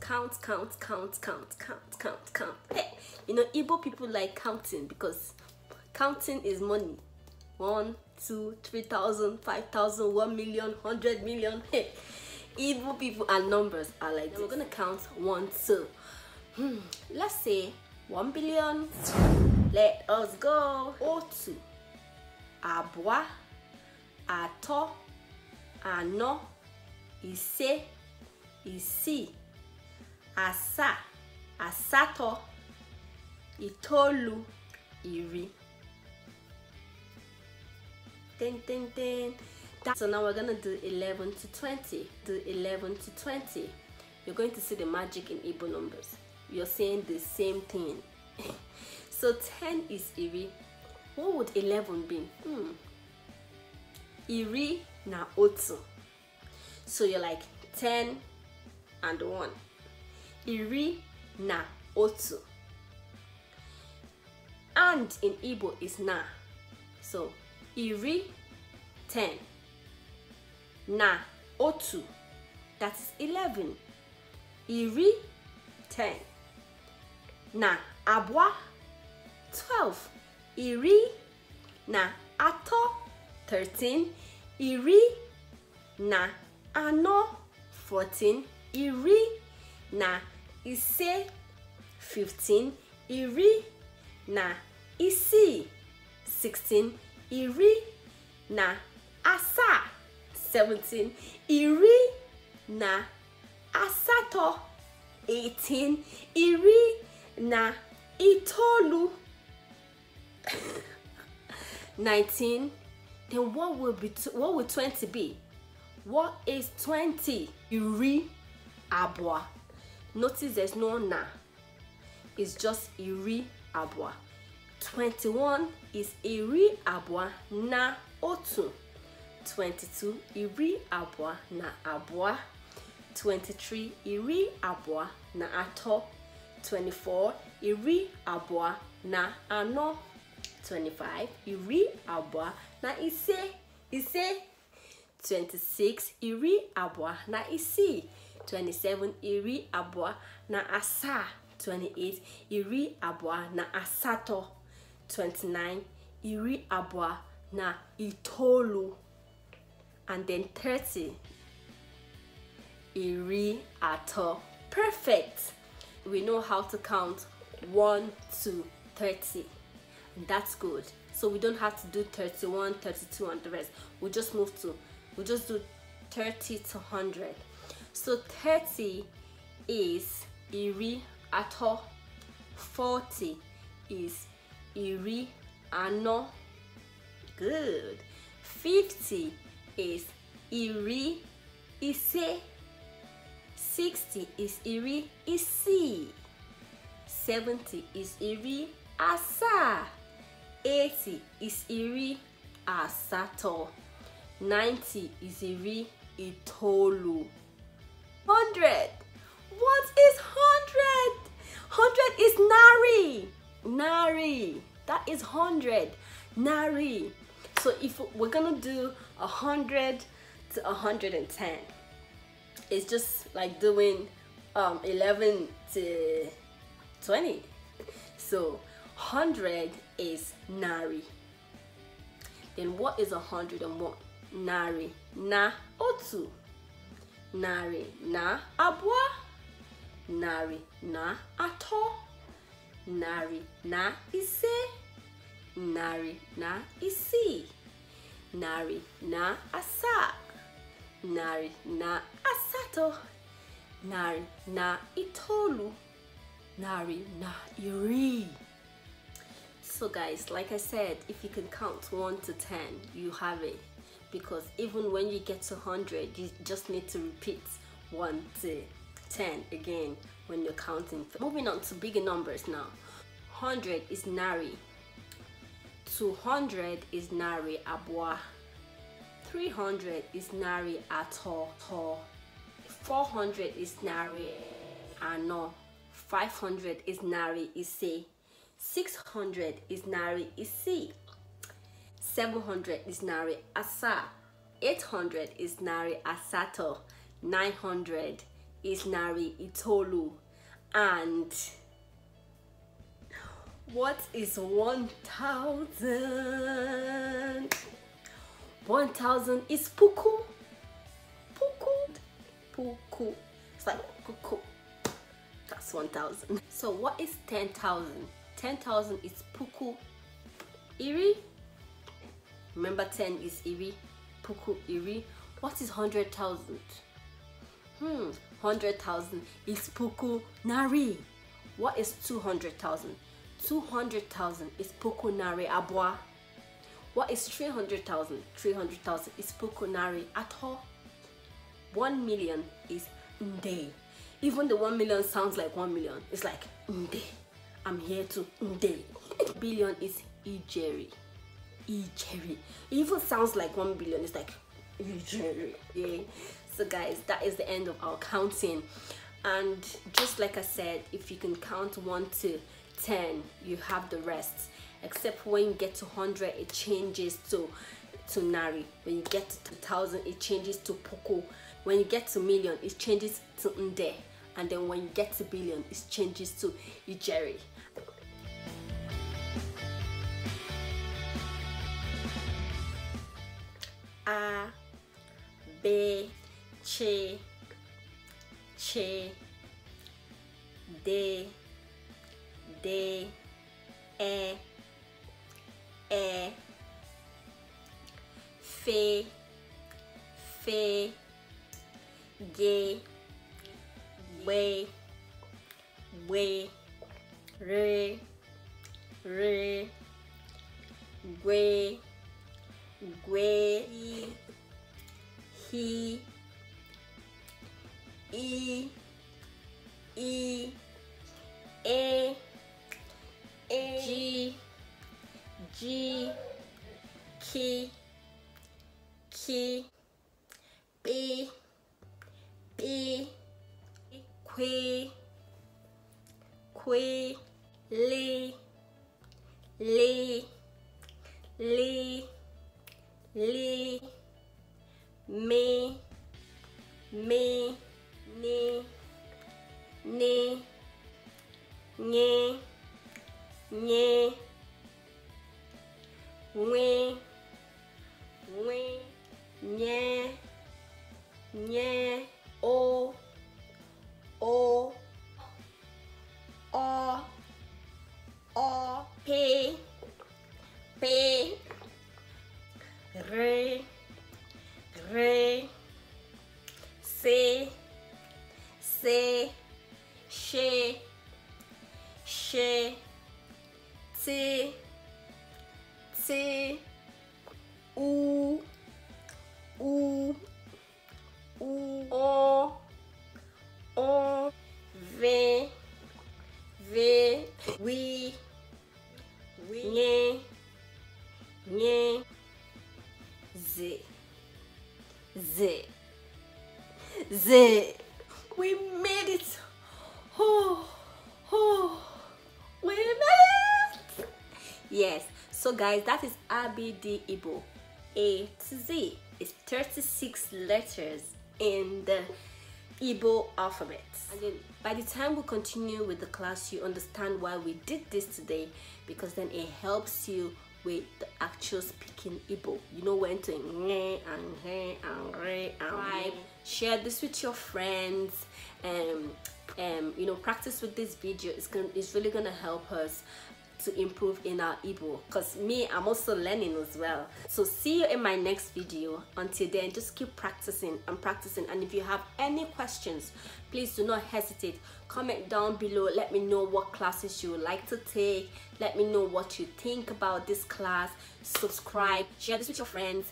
count, count, count, count, count, count, count, count. Hey, eh, you know, Igbo people like counting because counting is money. One, two, three thousand, five thousand, one million, hundred million. Hey, Igbo people and numbers are like this. We're gonna count one, two. Hmm, let's say one billion. Let us go. O two. abwa, ato, ano, ise, isi asa asatọ itolu, iri Ten, ten, ten. so now we're gonna do 11 to 20 do 11 to 20 you're going to see the magic in Igbo numbers you're saying the same thing so 10 is iri what would 11 be hmm iri na otu so you're like 10 and 1 iri na otu. And in Igbo is na. So iri, ten. Na otu, that's eleven. Iri, ten. Na abwa, twelve. Iri, na atọ, thirteen. Iri, na anọ, fourteen. Iri, na ise e fifteen. iri e na isii e sixteen. iri na asaa seventeen. iri na asatọ eighteen. iri na itoolu nineteen. then what will be what will twenty be what is twenty? iri abụọ Notice there's no na. It's just iri abwa. 21 is iri abwa na otu. 22 iri abwa na abwa. 23 iri abwa na atọ. 24 iri abwa na anọ. 25 iri abwa na ise ise 26 iri abwa na isi. 27 iri abụọ na asa. 28 iri abụọ na asatọ 29 iri abụọ na itolo. and then 30 iri atọ perfect we know how to count 1 to 30 that's good so we don't have to do 31 32 and the rest we just move to we just do 30 to 100 So 30 is iri ato. 40 is iri ano. Good. 50 is iri ise. 60 is iri isi. 70 is iri asa. 80 is iri asato. 90 is iri itolu. hundred. What is hundred? Hundred is nari. Nari. That is hundred. Nari. So if we're gonna do a hundred to hundred and ten, it's just like doing um, eleven to twenty. So hundred is nari. Then what is a hundred and one? Nari. Na otu narị na abwa narị na atọ narị na ise narị na isi, narị na asa, narị na asatọ narị na itolu, narị na iri so guys like i said if you can count 1 to 10 you have it because even when you get to 100 you just need to repeat 1 to 10 again when you're counting moving on to bigger numbers now 100 is nari 200 is nari abwa 300 is nari ato 400 is nari ano 500 is nari ise 600 is nari ise 700 is nari asa 800 is nari asato 900 is nari itolu and what is 1000 1000 is puku puku puku it's like puku that's 1000 so what is 10000 10000 is puku iri Remember 10 is iri, puku iri. What is 100,000? Hmm, 100,000 is puku nari. What is 200,000? 200,000 is puku nari abwa. What is 300,000? 300,000 is puku nari ato. 1 million is nde. Even the 1 million sounds like 1 million. It's like nde. I'm here to nde. Billion is ijeri. E It even sounds like 1 billion. It's like E Yeah. So guys, that is the end of our counting. And just like I said, if you can count 1 to 10, you have the rest. Except when you get to 100, it changes to to Nari. When you get to 1000, it changes to Poco. When you get to million, it changes to Nde. And then when you get to billion, it changes to Ijeri. B, C, C, D, D, E, E, F, F, G, B, B, R, R, G, G, P E E A A G G K K B B Q Q L L L nye, nye, we, we, nye, nye. C U U U O O V V We We Nye Nye Z Z Z We made it! Oh, oh, we made it! Yes. So guys, that is ABD ibo A to Z It's 36 letters in the ibo alphabet. And then by the time we continue with the class, you understand why we did this today because then it helps you with the actual speaking ibo You know when to Share this with your friends. Um, um, you know, practice with this video. It's gonna, it's really gonna help us to improve in our ebook because me i'm also learning as well so see you in my next video until then just keep practicing and practicing and if you have any questions please do not hesitate comment down below let me know what classes you would like to take let me know what you think about this class subscribe share this with your friends